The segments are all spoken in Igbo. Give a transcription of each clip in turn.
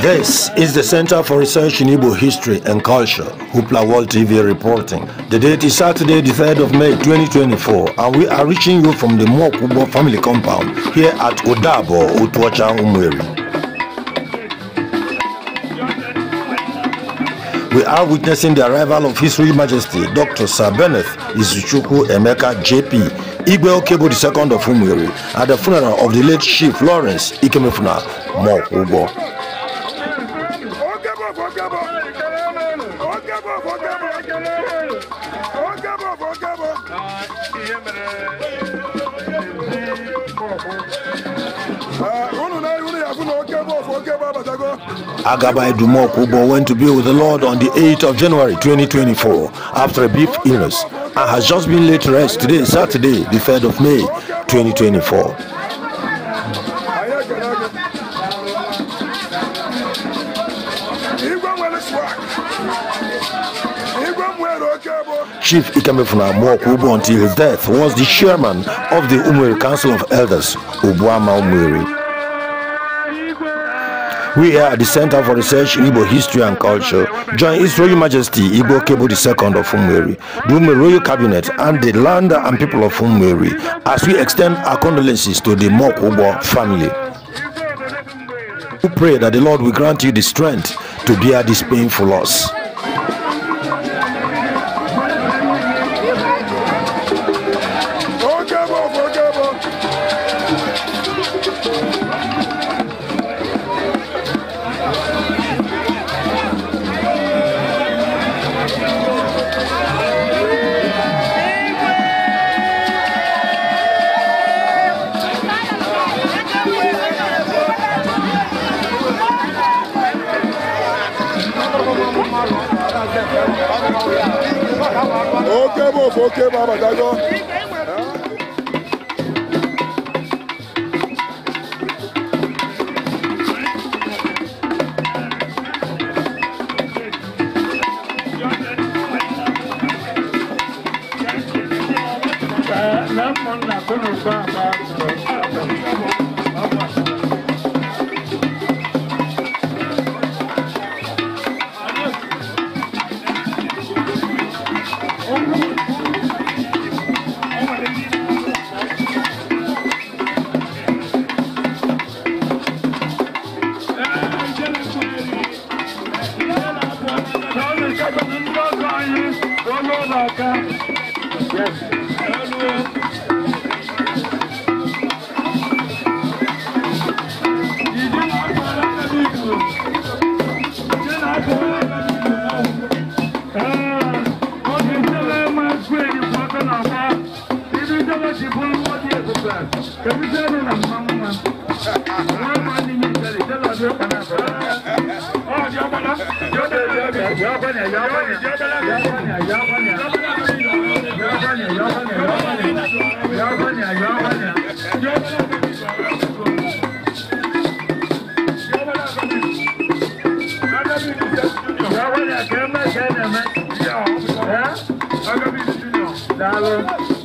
This is the Center for Research in Igbo History and Culture, Hoopla World TV reporting. The date is Saturday, the 3rd of May 2024, and we are reaching you from the Mokubo family compound here at Odabo, Utuacha Umweri. We are witnessing the arrival of His Royal Majesty Dr. Sir Bennett Izuchuku Emeka JP Igwe Okebo II of Umweri at the funeral of the late Chief Lawrence Ikemefuna Mokubo. Eh, Agaba Edumoku Kubo went to be with the Lord on the 8th of January 2024 after a brief illness and has just been laid to rest today, Saturday, the 3rd of May 2024. Chief Ikemefuna Mwoku Ubu until his death was the chairman of the Umwiri Council of Elders, Ubuama Umwiri. We are at the Center for Research in Igbo History and Culture join His Royal Majesty Igbo Kebo II of Umwiri, the Umwiri Royal Cabinet and the land and people of Umwiri as we extend our condolences to the Mwoku Ubu family. We pray that the Lord will grant you the strength to bear this painful loss. k'o k'e b'a ma Yeah, I'm gonna be the junior. Dollar.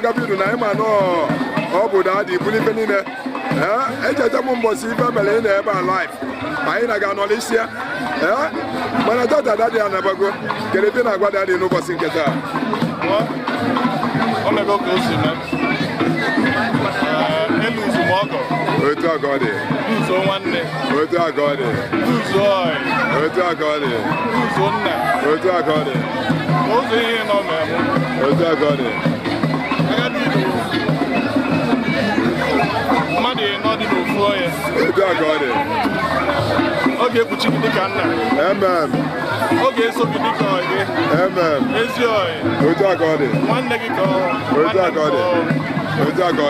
ka ọ gaba iru na anyị ma ọ bụ da dị ibuli ife niile ee echeta m mbọsi ife mere ị na-ebe a laif anyị na-aga nọlisia ee mana tata dadị ya nabago kere ebe na-agwa dadị n'ụbọchị nke taa otu aga ọ dị nzuzo nwanne otu aga ọ dị nzuzo ọyị otu aga ọ dị nzuzo nna otu aga ọ dị ụzọ ihe nọ na-eme otu aga ọ dị mmadụ ịnọ dị n'ofu onye ọ ga-ekpuchi gị dịka nna ọ ga-eso gị dịka ọyị ezi ọyị nwanne gị ka ọ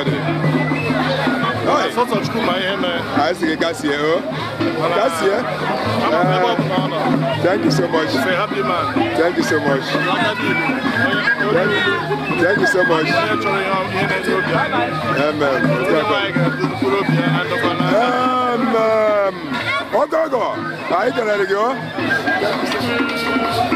Noi. Sot sot shku ma jeme. Thank you so much. Say happy man. Thank you so much. Thank you. Thank you so much. Amen. Amen. Ogogo. Ayi kere rigi o. Thank you so much.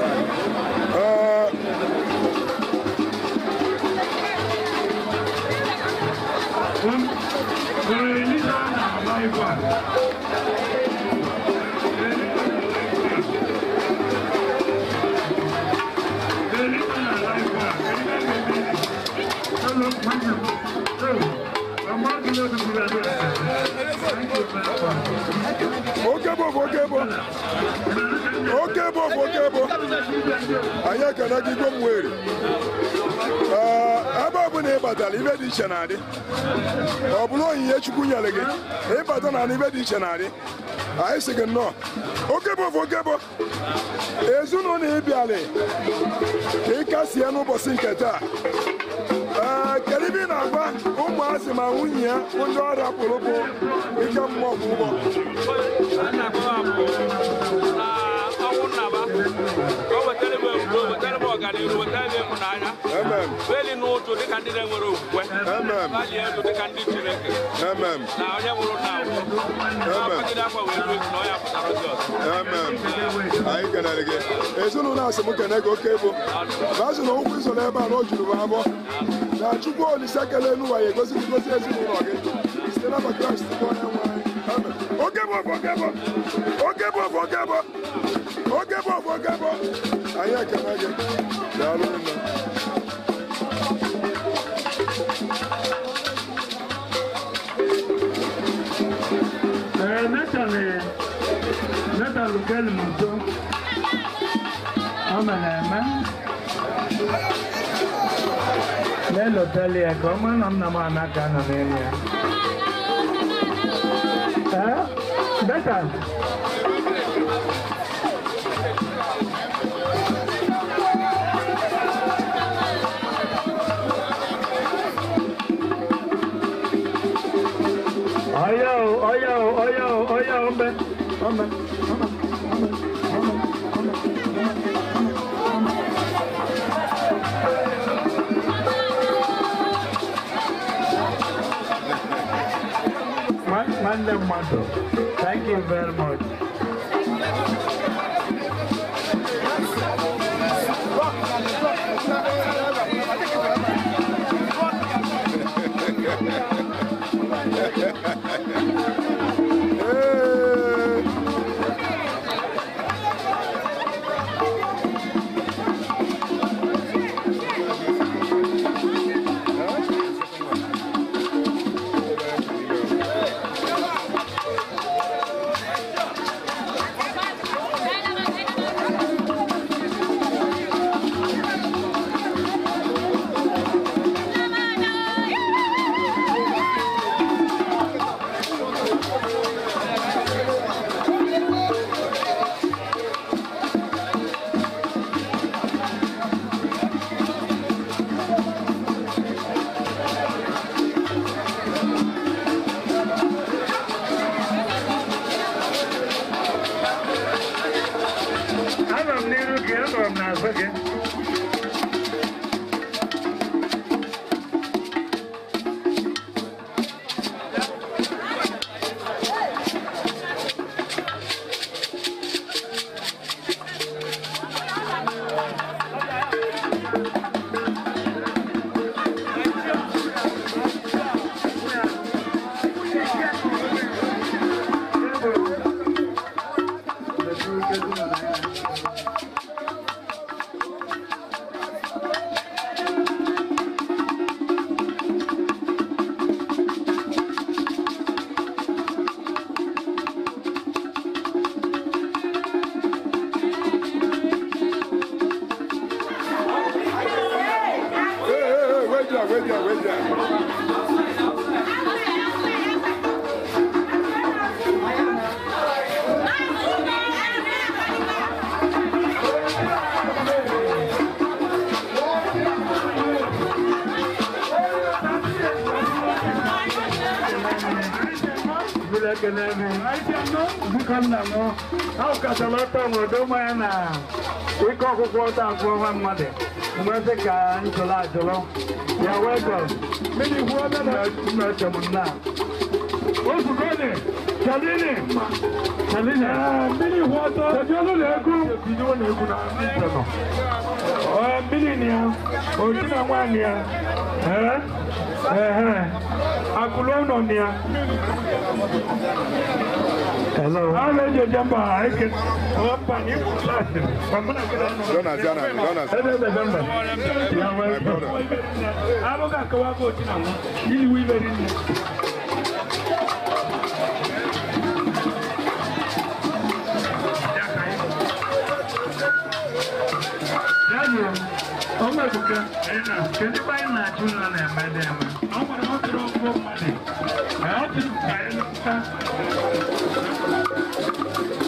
Okay, Okay, Okay, Okebo, okebo. Okebo, okebo. Ayaka na gigo mwere. Ah ọbụrụ e na ịbatara ibe dị iche na ọ bụrụ onyinye chukwu nyere gị ịbata na ibe dị iche na anyị sị gị nnọọ okebo okebo ezinụlọ ịbịalị ka ị n'ụbọchị nke taa kedu ibe ị na-agwa ụmụazị ma nwunye ya ndị ọrịa pụrụ bụ ike mmụọ bụ ụgbọ bụ ọganihu ndị enwere okwukwe elu dịka ndị na na ozi anyị kenere gị ezinụlọ asị m gị oke bụ baazụ na ụkwụ izo n'ebe a na o juru m abụọ na chukwu olise kele egosi gị gosi ezinụlọ gị site na Kraịst onye anyị bụ oge gabọ gabọ anyị ekene gị daalụ nne Nathalie, Nathalie Galmundo, ọmọ na-eme. N'elotali ya ka ọma nọ ya. Ee, Nathalie. Thank you very much. biko nna m ahụkachala ọtọ obodo mmanya na ike ọkụkụ ọta afọ ọnwa mmadụ mmasị ka njụrụ ajụrụ ya wee gọ mmiri kwuo mmeche m nna ozugone chalini chalini mmiri kwuo ọtọ kedu ọnụ na-egwu mmiri na ya oji na nwaanyị ya akụlụ ọnọ ya Jonas, Jonas, Jonas. My brother. ọmọ ìbùkẹ́ ẹ̀yìnà kẹ́ni báyìí náà tún náà nà ẹ̀mẹ́ dẹ́ ẹ̀mẹ́ ọmọ náà ó ti rọ́ ọgbọ́n mọ́lẹ̀ ẹ̀ ọ́ ti tún kàyé lọ́kùtà. Thank you.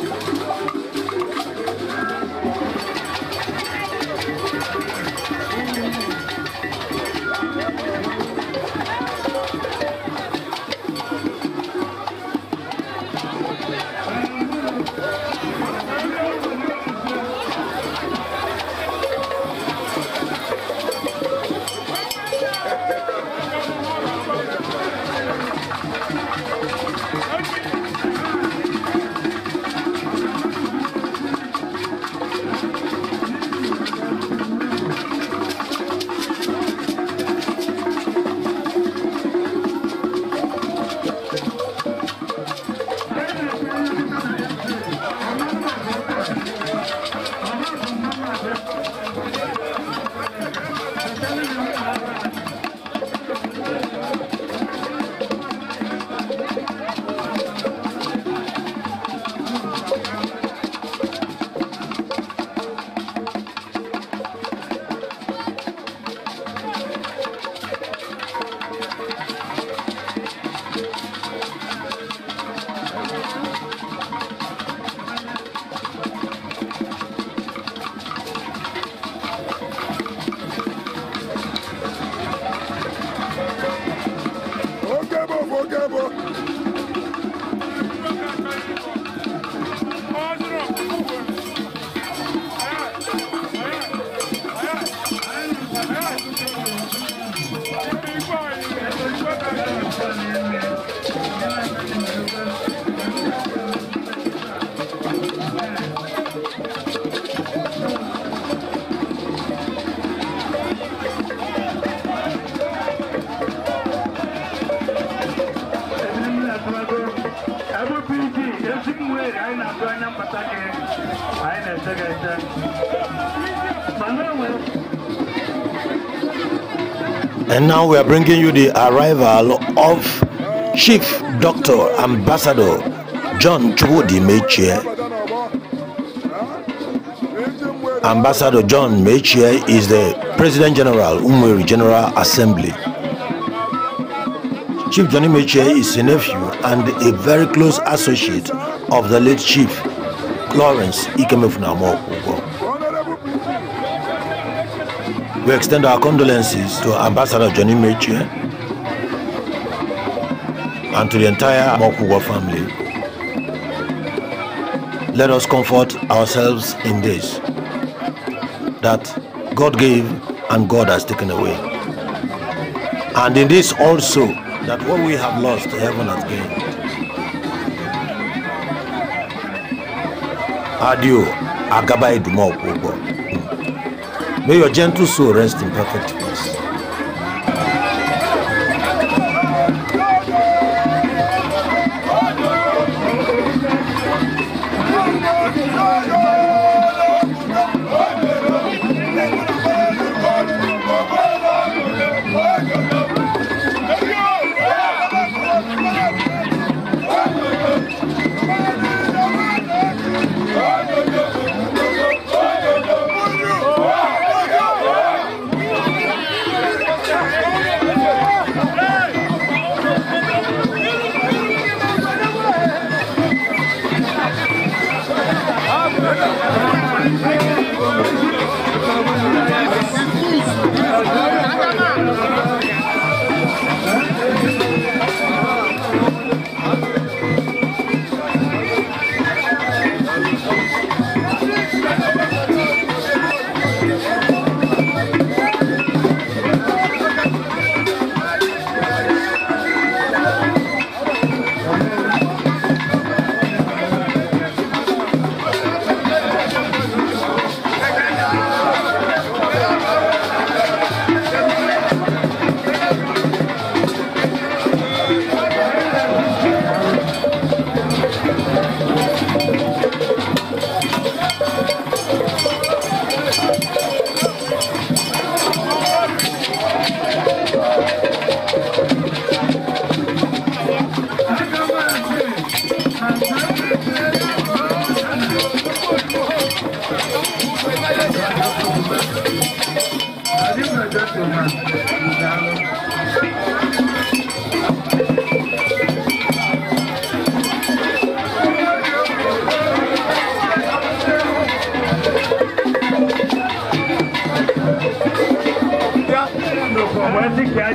Now we are bringing you the arrival of Chief Doctor Ambassador John Chubudi Mechie. Ambassador John Mechie is the President General Umweri General Assembly. Chief Johnny Mechie is a nephew and a very close associate of the late Chief Lawrence Ikemefunamo We extend our condolences to Ambassador Johnny Meche and to the entire Mokuwa family. Let us comfort ourselves in this, that God gave and God has taken away. And in this also, that what we have lost, heaven has gained. Adieu, Agaba Idumokwu. May your gentle soul rest in perfect peace.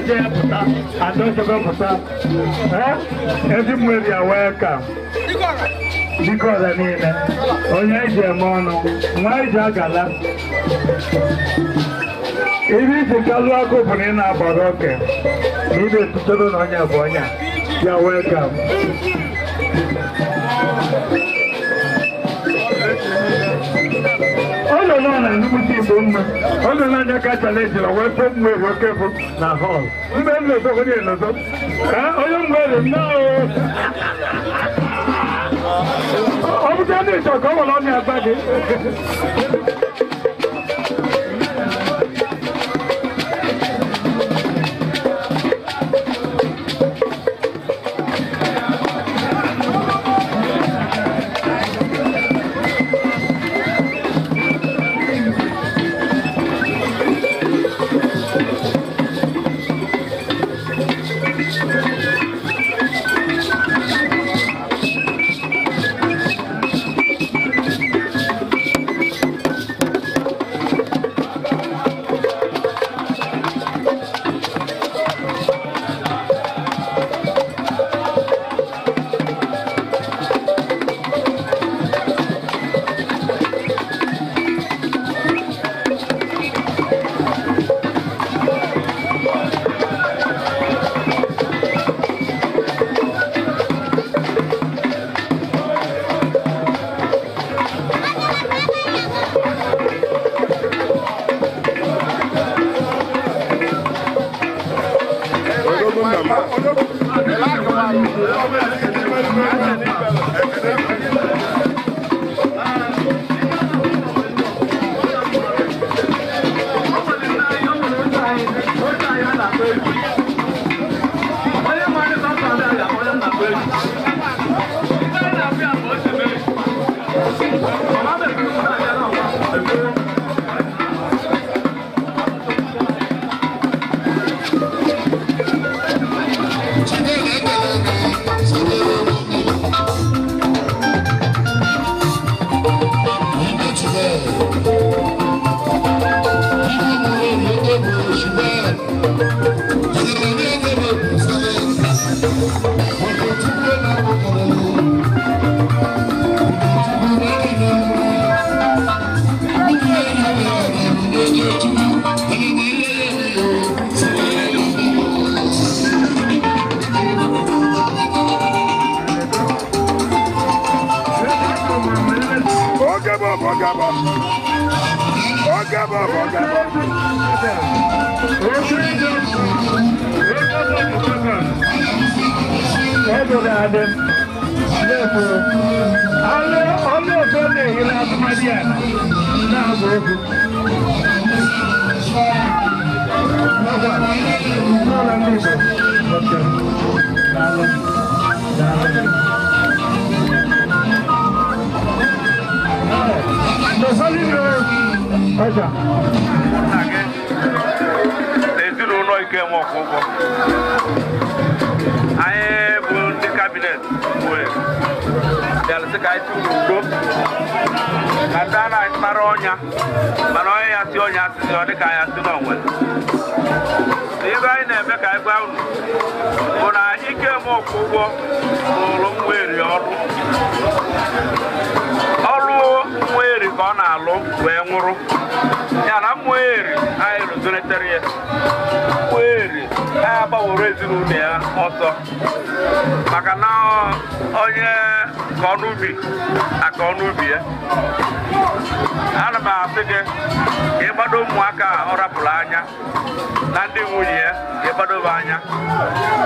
ije ya pụta onye e eme ọnụ nwa iji e agala ibe isi kalụ agụ bụ na ị na-agbara oke na ị na-etutere na bụ ya mma ọ nọ n'anya ka chalenji na wee fom wee wee kefụ na họl mgbe m na-ezo onye na ka onye mgbe ere nnọọ ọ bụta na ịchọ ka ọ nwere ọnya agba gị Thank you. Hello, Adam. Therefore, Allah, Allah, Sunday, you'll have my dear. Now, go. No, no, no, no, no, no, no, no, nna gị na ike Ikenwe Ọkụgwọ anyị bụ ndị kabinet bịarụsị ka anyị ka ndị a na ọnya mana onye ya si ọnya asịsị ọ dịka anyị asị n'onwe ibe anyị na-eme ka anyị gwa unu bụ na anyị Ikenwe Ọkụgwọ ọrụ nwa eri ka ọ na-alụ wee nwụrụ ya na mmụọ eri anyị rụzonetara ya mmụọ eri anyị ezinụlọ ya ọsọ maka na onye ka ọnụ ubi aka ọnụ ubi ya ana m asị gị ka ịgbado ụmụaka ọ rapụrụ anya na ndị nwunye ya ịgbadobe anya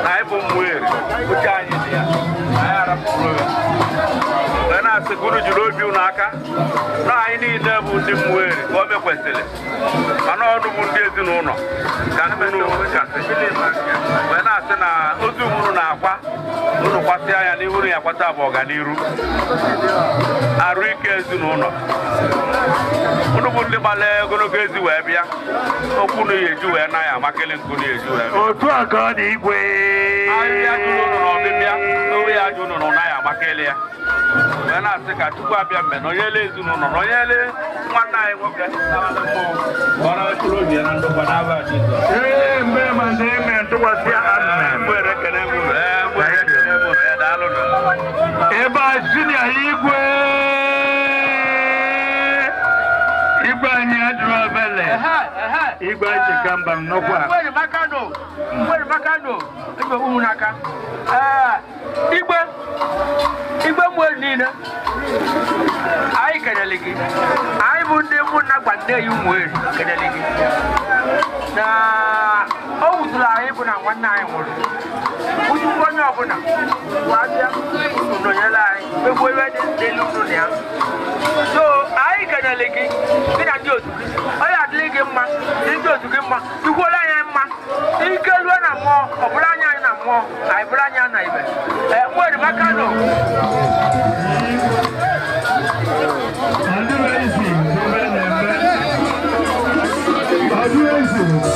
na ịbụ mmụọ eri uche anyị dị ya anyị arapụrụ ya asị ka unu jiri obi unu aka na anyị niile bụ ndị mmụeri ka o mekwesịrị mana ọnụ bụ ndị ezinụlọ ka unu kasị ya akpata bụ ọganiru arụ ike ezinụlọ ụnụ bụ ndị gbara ogologo ezi wee bịa okwu na eji wee na ya amakịlị nkụ na eji wee otu a ka ọ dị igwe ahịhịa jụrụ ụnụ ọbịbịa n'owe ya jụ na ya amakịlị ya wee na-asị ka Chukwu abịa mgbe na onyele ezinụlọ na onyele nwanne anyị nwoke obi ya na ndụkwa Jizọs ee mgbe Virginia Igwe igwe anyị adịrọ abele igwe anyị achịka mba nnọkwa igwe igwe mmụọ niile anyị kelele gị anyị bụ ndị mụ na gbande ya ụmụ eri kelele gị na o wutụrụ anyị bụ na nwanne anyị nwụrụ onye ọbụla wabịa nọnyere anyị egwu ebe dị n'elu ụlọ ya so anyị kenele gị gị na ndị otu gị onye adịghị gị mma ndị otu gị mma ikwuola anya mma ike lue na mmụọ ọbụla anya anyị na mmụọ anyị bụrụ anya na ibe nwere nọ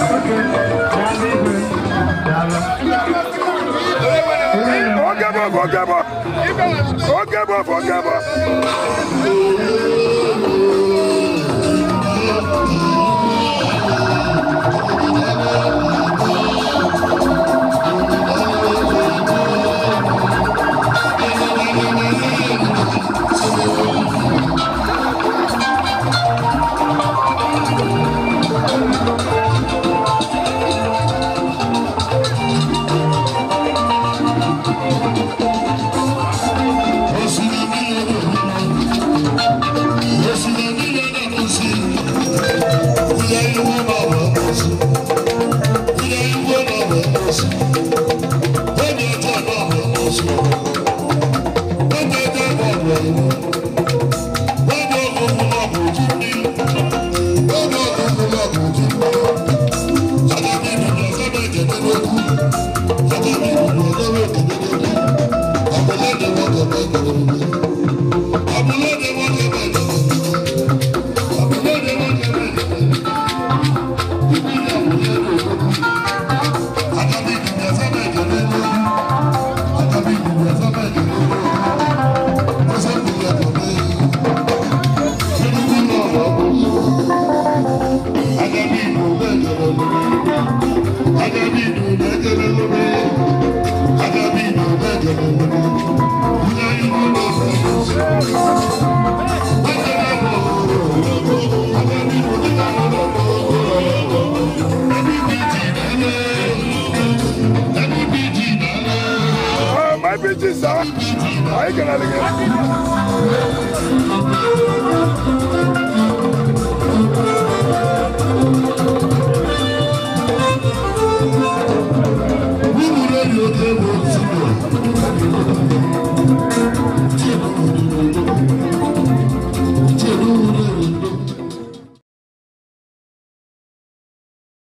Okay. forget about, forget about. Forget about, forget about.